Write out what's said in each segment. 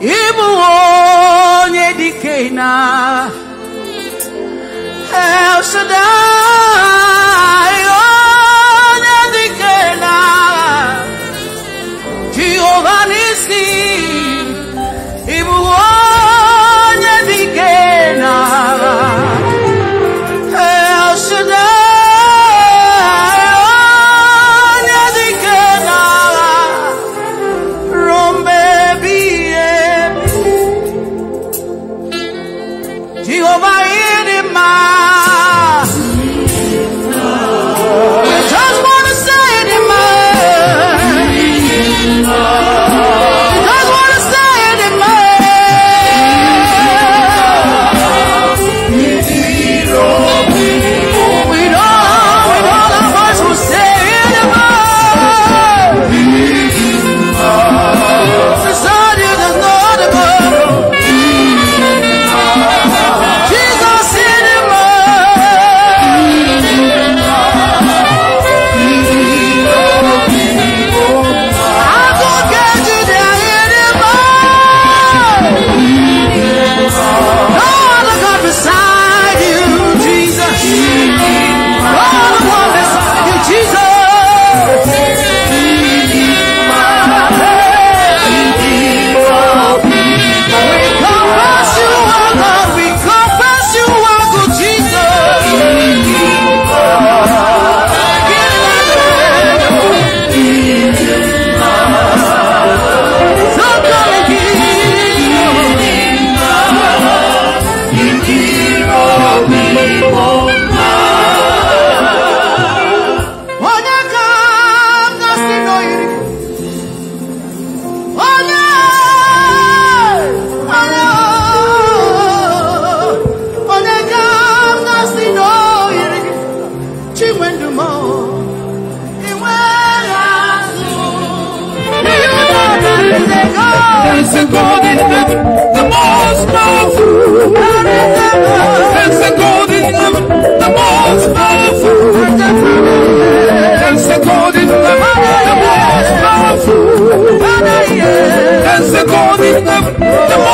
ị bụ onye dike na El Shaddai It's a golden heaven, the most powerful. It's a golden heaven, the most powerful. It's a golden heaven, the most powerful. It's a golden heaven, the most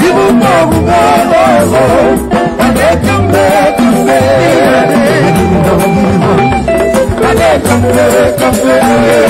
give them all the love I let them make them say I let them make them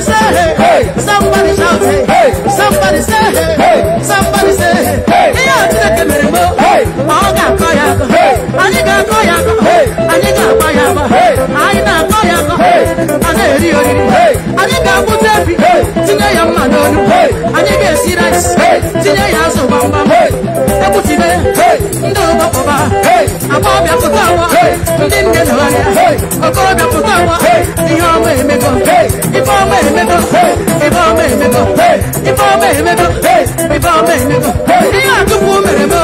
Somebody say, hey. Somebody shout, hey. Somebody say, hey. Somebody say, hey. Hey, I'm taking a little more. Hey, I'm gonna call you. Hey, I'm gonna call you. Hey, I'm gonna call you. Hey, I'm gonna call you. Hey, I'm gonna call you. Hey, I'm gonna put up. Hey, today I'm not on. Hey, I'm gonna see that. Hey, today I'm so bummed. Hey, I'm putting it. Hey, no, no, no, no. I'm gonna nne na ọhịa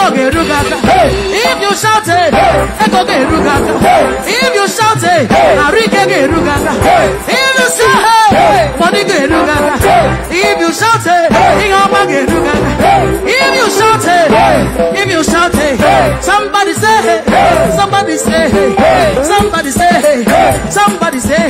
echo ga-eru if you shout it, ga-eru gị aka if you shout it, ike ga-eru gị if you shout it, ga ga-eru gị if you shout it, ọma ga-eru gị if you shout it, if you shout it. somebody say somebody say somebody say somebody say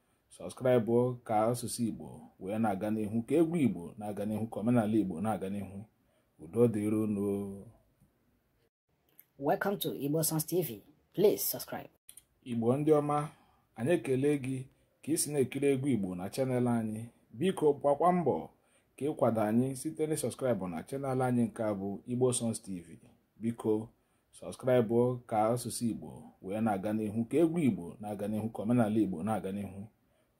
sọskraịbụ ka asụsụ igbo wee na-aga n'ihu ka egwu igbo na-aga n'ihu ka omenala igbo na-aga n'ihu udo dịru no welcome to igbo songs tv please subscribe igbo ndị ọma anyị ekele gị ka ị si na-ekiri egwu igbo na chanel anyị biko gbakwa mbọ ka ịkwado anyị site na sọskraịbụ na chanel anyị nke a bụ igbo sons tv biko sọskraịbụ ka asụsụ igbo wee na-aga n'ihu ka egwu igbo na-aga n'ihu ka omenala igbo na-aga n'ihu